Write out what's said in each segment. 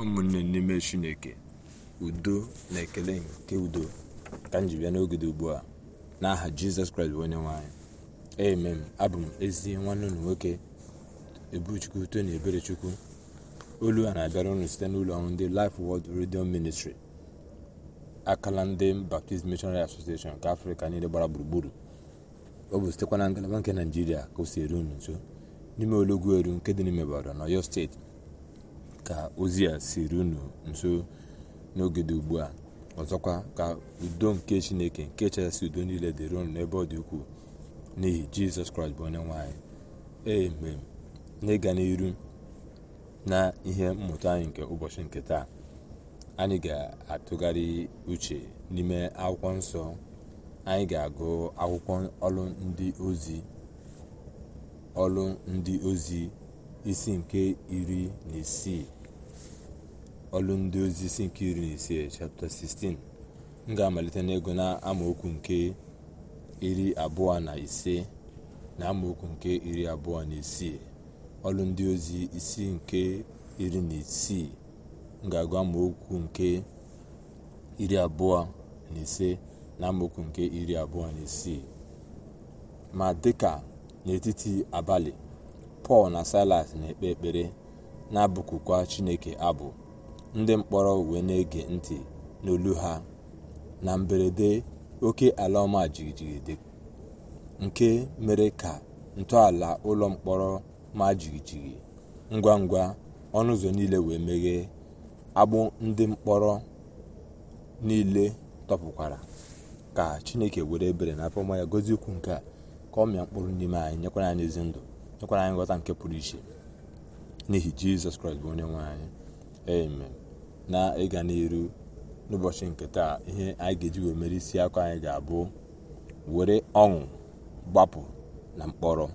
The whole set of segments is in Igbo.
ụmụnne n'ime chineke udo na ekele nke udo ka m ji bịa n'oge dị ugbu a n'aha jizọs kraịst bụ onye nwanyị amen abụ m ezi nwanne unu nwoke ebuchukwu tony eberechukwu olu a na-abịara ụnụ site n'ụlọ ọrụ ndị Life wọld redio Ministry akala ndị Baptist Missionary Association nke afrịka niile gbara gburugburu ọ bụ sitekwa na ngalaba nke naijiria ka o si eru unu nso n'ime olugwu eru nke dị n'ime Ibadan na Ọyọ steeti ka ozi a siri unu nso n'oge dị ugbu a ọzọkwa ka udo nke chineke nke chasị udo niile dịrị unu n'ebe ọ dị ukwuu n'ihi jizọs kraịst bụ onye nwanyị eme n'ịga n'iru na ihe mmụta anyị nke ụbọchị nke taa anyị ga-atụgharị uche n'ime akwụkwọ nsọ anyị ga-agụ akwụkwọ ọlụ ndị ozi ọlụ ndị ozi isi nke iri na isii ọlụ ndị ozi nke iri na ise chapta 16 m ga-amalite n'ego na amaokwu nke iri abụọ na ise na amaokwu nke iri abụọ na isii ọlụ ndị ozi isi nke iri na isii m ga-agụ amaokwu nke iri abụọ na ise na amaokwu nke iri abụọ na isii ma dịka n'etiti abalị pọl na silas na-ekpe ekpere na-abụkukwa chineke abụ ndị mkpọrọ wee na-ege ntị n'olu ha na mberede oke ala ọma jigijigide nke mere ka ntọala ụlọ mkpọrọ ma jigijigi ngwa ngwa ọnụ ụzọ niile wee meghee agbụ ndị mkpọrọ niile tọpụkwara ka chineke were ebere na afọ ya gozi okwu nke a ka ọ mịa mkpụrụ n'ime anyị nyekwara anyị ezi ndụ nyekwara anyị nghọta nke pụrụ iche n'ihi jizọs kraịst bụ onye nwe anyị amen na ịga n'iru n'ụbọchị nke taa ihe anyị ga-eji mere isi akụ anyị ga-abụ were ọṅụ gbapụ na mkpọrọ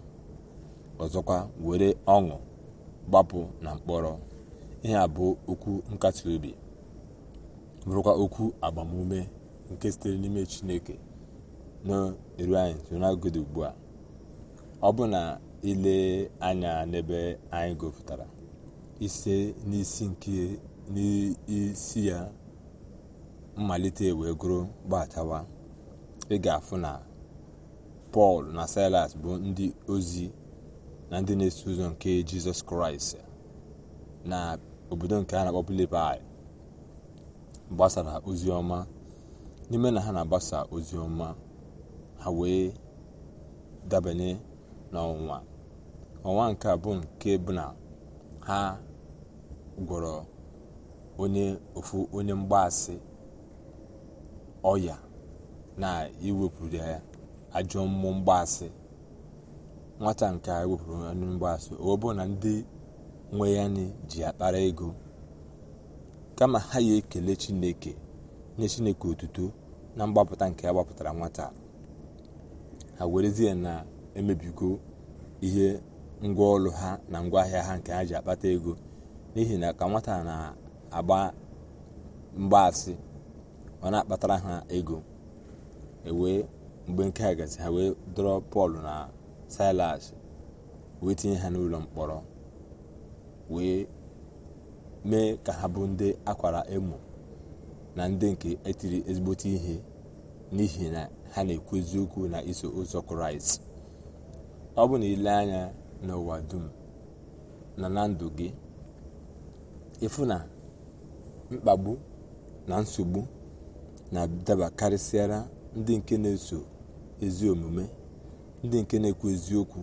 ọzọkwa were ọṅụ gbapụ na mkpọrọ ihe a bụ okwu nkasi obi bụrụkwa okwu agbamume nke sitere n'ime chineke na anyị sonagode ugbu a ọ bụ na ile anya n'ebe anyị gụpụtara ise n'isi nke n'isi ya mmalite wee gụrụ gbatawa ị ga-afụ na pọl na silas bụ ndị ozi na ndị na-eso ụzọ nke jizọs kraịst na obodo nke a na-akpọ Filipaị gbasara ozi ọma n'ime na ha na-agbasa ozi ọma ha wee dabanye n'ọnwa ọnwa nke a bụ nke bụ na ha gwọrọ onye ofu onye mgbaasị ọya na iwepụrụ ya ajọ mmụọ mgbaasị nwata nke a wepụrụ onye mgbaasị ọ na ndị nwe ya ji akpara ego kama ha ya ekele chineke nye chineke otuto na mgbapụta nke ya gbapụtara nwata ha werezie na-emebigo ihe ngwa ha na ngwaahịa ha nke ha ji akpata ego n'ihi na ka nwata na agba mgbaasị ọ na-akpatara ha ego ewee mgbe nke a gasị ha wee dọrọ pọl na silas wee tinye ha n'ụlọ mkpọrọ wee mee ka ha bụ ndị akwara emo na ndị nke etiri ezigbote ihe n'ihi na ha na-ekwu eziokwu na iso ụzọ kraịst ọ bụ na ile anya n'ụwa dum na na ndụ gị ịfụ mkpagbu na nsogbu na-adaba karịsịara ndị nke na-eso ezi omume ndị nke na-ekwu eziokwu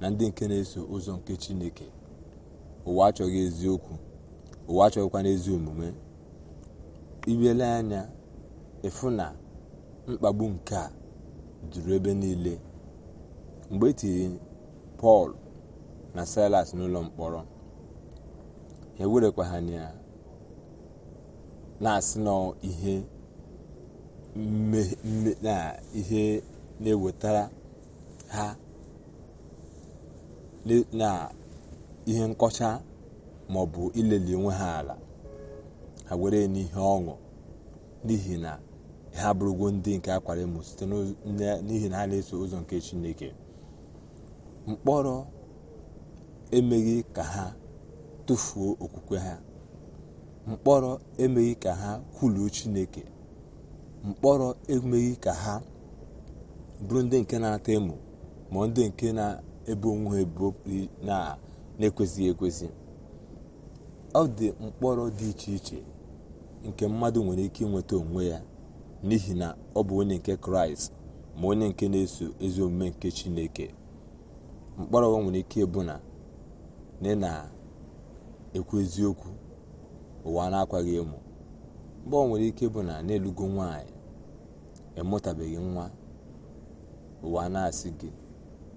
na ndị nke na-eso ụzọ nke chineke ụwa achọghị eziokwu ụwa achọghịkwana ezi omume iwele anya efu na mkpagbu nke a juru ebe niile mgbe etiri pọl na silas n'ụlọ mkpọrọ ewerekwa ha na na-asị na ihe na-ewetara ha na ihe nkọcha maọbụ ileli onwe ha ala ha were n'ihe ọṅụ n'ihi na ha abụrụgo ndị nke akwara emo site n'ihi na ha na-eso ụzọ nke chineke mkpọrọ emeghị ka ha tụfuo okwukwe ha mkpọrọ emeghị ka ha kwuluo chineke mkpọrọ emeghị ka ha bụrụ ndị nke na-ata emo ma ndị nke na-ebo onwe ha na-ekwesịghị ekwesị ọ dị mkpọrọ dị iche iche nke mmadụ nwere ike inweta onwe ya n'ihi na ọ bụ onye nke kraịst ma onye nke na-eso ezi omume nke chineke mkpọrọ nwere ike ịbụ na ị na-ekwu eziokwu ụwa na-akwaghị emo mgbe ọ nwere ike bụ na na-elugo nwaanyị emụtabeghị nwa ụwa na-asị gị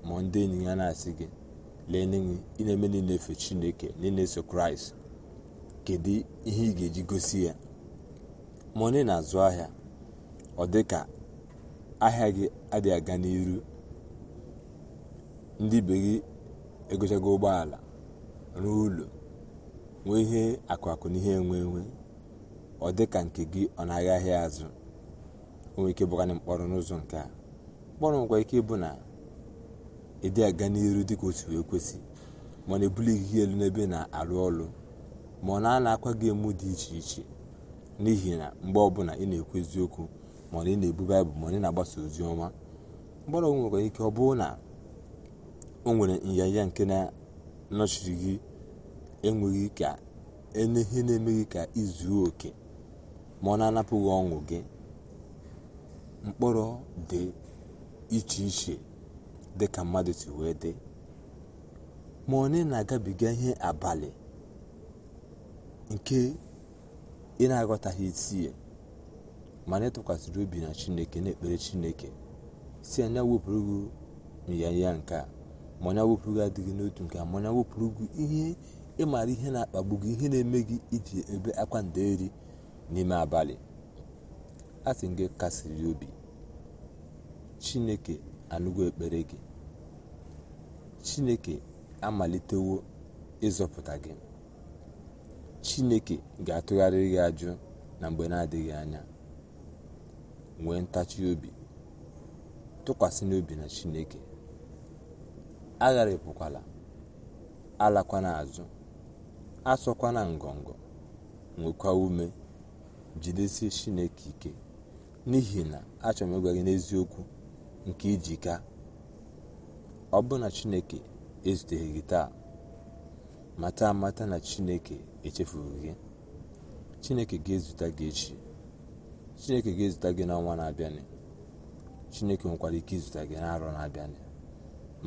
ma ndị enyi ya na-asị gị lee n'enwe ị na-eme niile efe chineke na niile eso kraịst kedu ihe ị ga-eji gosi ya ma na-azụ ahịa ọ dị ka ahịa gị adịghị aga n'iru ndị be gị egochago ụgbọala ruo ụlọ nwee ihe akụ akụ na ihe enwe enwe ọ dị ka nke gị ọ na-agha ahịa azụ o nwere ike bụgana mkpọrọ n'ụzọ nke a mkpọrọ nwekwa ike ịbụ na ịdị aga n'iru dị ka otu wee kwesị ma ọ na-ebulighị ihe elu n'ebe na-arụ ọrụ ma ọ na-ana akwa gị emu dị iche iche n'ihi na mgbe ọbụla ị na-ekwu eziokwu ma ọ na ị na-ebu baịbụl ma ọ na-agbasa ozi ọma mkpọrọ nwekwa ike ọ bụrụ na o nwere nyanya nke na-anọchiri gị enweghị ka ihe na-emeghị ka izuo oke ma ọ na-anapụghị ọṅụ gị mkpụrụ dị iche iche dị ka mmadụ si wee dị ma onye na-agabiga ihe abalị nke ị na-aghọtaghị isi ya ma na ịtụkwasịrị obi na chineke na-ekpere chineke si anya wepụrụ ya nyaya nke a ma onye gị adịghị n'otu nke a ma onye wepụrụ gị ihe ịmara ihe na-akpagbu gị ihe na-eme gị iji ebe akwa eri n'ime abalị a sị gị kasiri obi chineke anụgo ekpere gị chineke amalitewo ịzọpụta gị chineke ga-atụgharị gị ajụ na mgbe na-adịghị anya nwee ntachi obi tụkwasị n'obi na chineke agharịpụkwala alakwana azụ asọkwa na ngọngọ nwekwa ume jidesie chineke ike n'ihi na achọrọ m ịgwa gị n'eziokwu nke ijika ọ bụ na chineke ezuteghị gị taa mata amata na chineke echefughị gị chineke ga-ezute gị echi chineke ga-ezute gị n'ọnwa na-abịanị chineke nwekwara ike izute gị n'arọ na-abịanị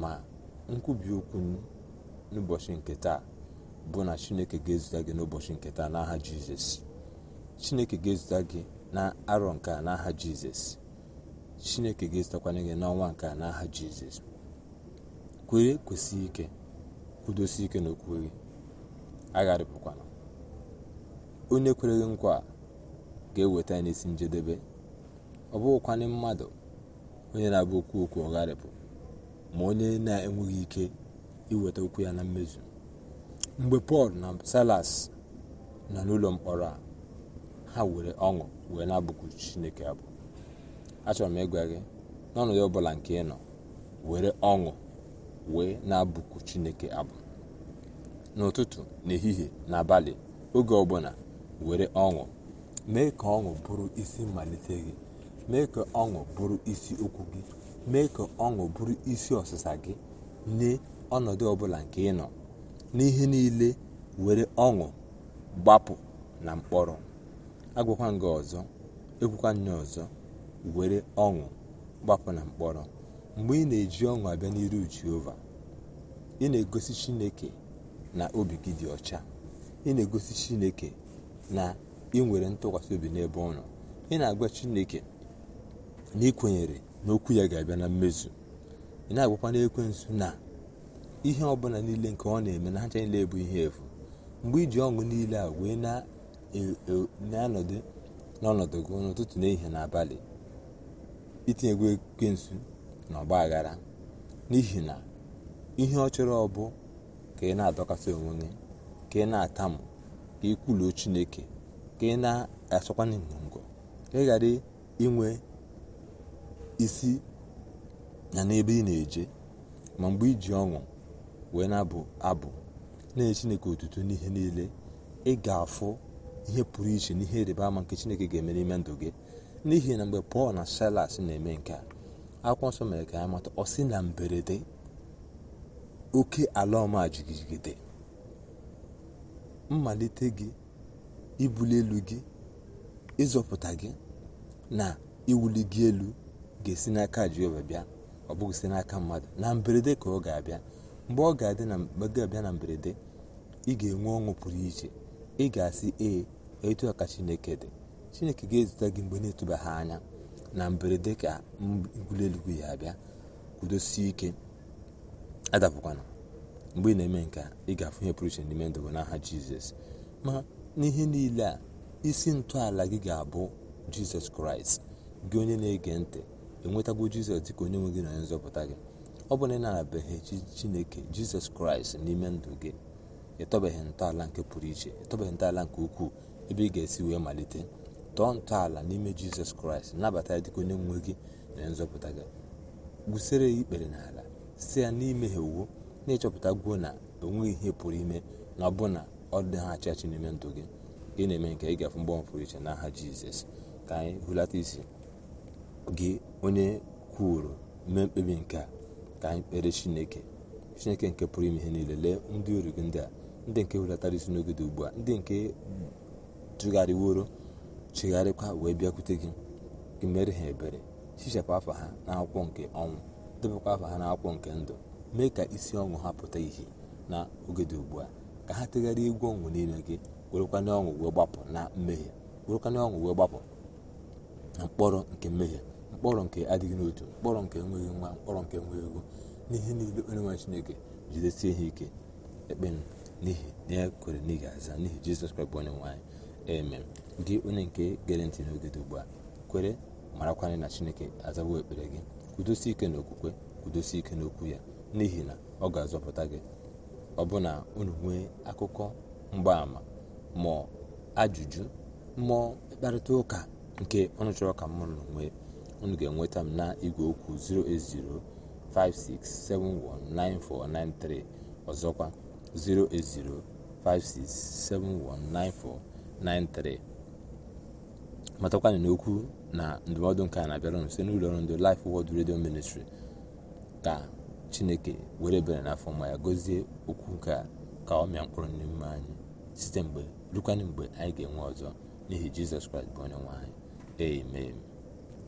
ma nkwubi okwu n'ụbọchị nke taa bụ na chineke ga-ezute gị n'ụbọchị nke taa n'aha jizọs chineke ga-ezute gị na arọ nke a n'aha jizọs chineke ga-ezutakwanye gị n'ọnwa nke a n'aha jizọs kwere kwesị ike kwudosi ike n'okwu gị agharịpụkwana onye kwere gị nkwa ga-eweta ya n'isi njedebe ọ bụghịkwanị mmadụ onye na-abụ okwu okwu ọgharịpụ ma onye na-enweghị ike iweta okwu ya na mmezu mgbe pọl na salas nọ n'ụlọ mkpọrọ a ha were ọṅụ wee na-abụku chineke abụ achọrọ m ịgwa gị n'ọnọdụ ọbụla nke ị nọ were ọṅụ wee na-abụku chineke abụ n'ụtụtụ n'ehihie na abalị oge ọbụla were ọṅụ mee ka ọṅụ bụrụ isi mmalite gị mee ka ọṅụ bụrụ isi okwu gị mee ka ọṅụ bụrụ isi ọsịsa gị nye ọnọdụ ọbụla nke ị nọ n'ihe niile were ọṅụ gbapụ na mkpọrọ agwakwa nga ọzọ ekwukwa nya ọzọ were ọṅụ gbapụ na mkpọrọ mgbe ị na-eji ọṅụ abịa n'iru jehova ị na-egosi chineke na obi gị dị ọcha ị na-egosi chineke na ị nwere ntụkwasị obi n'ebe ọ nọ ị na-agwa chineke na ị kwenyere na okwu ya ga-abịa na mmezu ị na-agwakwa ekwensụ na ihe ọbụla niile nke ọ na-eme na hacha niile bụ ihe efu mgbe iji ọṅụ niile a wee e, e, na-anọdụ n'ọnọdụ gị n'ụtụtụ n'ehihie na abalị itinyegwu ekwensu na ọgba aghara n'ihi na ihe ọ chọrọ ọbụ ka ị na-adọkasị onwe gị ka ị na-atamụ ka ị kwuluo chineke ka ị na-asọkwa ngọngọ ka ị ghara inwe isi na n'ebe ị na-eje ma mgbe iji ọṅụ wee na-abụ abụ na-enye chineke otutu n'ihe niile ị ga-afụ ihe pụrụ iche n'ihe ịrịba ama nke chineke ga-eme n'ime ndụ gị n'ihi na mgbe pọl na silas na-eme nke a akwụkwọ nsọ mere ka anyị mata ọ sị na mberede oke ala ọma jigijigide mmalite gị ibuli elu gị ịzọpụta gị na iwuli gị elu ga-esi n'aka jehova bịa ọ bụghị si n'aka mmadụ na mberede ka ọ ga-abịa mgbe ọ ga-abịa na mberede ị ga-enwe ọṅụ pụrụ iche ị ga-asị ee etu a ka chineke dị chineke ga-ezute gị mgbe na-etubaghị anya na mberede ka ngwụli eluigwe ya abịa kwudosie ike adapụkwana mgbe ị na-eme nke a ị ga-afụ ihe pụrụ iche n'ime ndụ n'aha jizọs ma n'ihe niile a isi ntọala gị ga-abụ jizọs kraịst gị onye na-ege ntị enwetago jizọs dịka onye nwe gị na onye nzọpụta gị ọ bụ na ị narabeghị chineke jizọs kraịst n'ime ndụ gị ịtọbeghị ntọala nke pụrụ iche ịtọbeghị ntọala nke ukwuu ebe ị ga-esi wee malite tọọ ntọala n'ime jizọs kraịst nabata ya dịka onye nwe gị na nzọpụta gị gbusere ya ikpere n'ala si ya n'imeghe ha iwu na-ịchọpụta gwuo na onweghị ihe pụrụ ime na ọ bụ na ọ dị ha achị achị n'ime ndụ gị gị na-eme nke ị ga-afụ mgbanwe pụrụ iche n'aha jizọs ka anyị hụlata isi gị onye kwuru mee mkpebi nke a ka anyị kpere chineke chineke nke pụrụ ime ihe niile lee ndị oru gị ndị a ndị nke hulatara isi n'oge dị ugbu a ndị nke tụgharịworo chegharịkwa wee bịakwute gị gị mere ha ebere hichapụ afọ ha na akwụkwọ nke ọnwụ debekwa afọ ha akwụkwọ nke ndụ mee ka isi ọṅụ ha pụta ihe na oge dị ugbu a ka ha tegharịa egwu ọnwụ n'ime gị werekwa n'ọṅụ wee gbapụ na mmehie werekwa n'ọṅụ wee gbapụ na mkpọrọ nke mmehie mkpọrọ nke adịghị n'otu mkpọrọ nke enweghị nwa mkpọrọ nke enweghị ego n'ihe niile onye nwere chineke jidesie ihe ike ekpe m n'ihi na ya kwere n'ihi aza n'ihi jizọs kraịst bụ onye nwanyị eme gị onye nke gere ntị n'oge dị ugbu a kwere marakwanye na chineke azawo ekpere gị kwudosie ike n'okwukwe kwudosie ike n'okwu ya n'ihi na ọ ga-azọpụta gị ọ bụ na unu nwee akụkọ mgbaàmà ma ajụjụ mmụọ mkparịta ụka nke ọnụ chọrọ ka mụrụ nwee unu ga-enweta m na igwe okwu 08056719493 ọzọkwa 08056719493 matakwanụ n'okwu na ndụmọdụ nke a na-abịara nso n'ụlọ ọrụ ndị Life Word Radio Ministry ka chineke were ebere n'afọ ma ya gọzie okwu nke a ka ọ mịa mkpụrụ n'ime anyị site mgbe rukwanụ mgbe anyị ga-enwe ọzọ n'ihi jizọs kraịst bụ onye nwe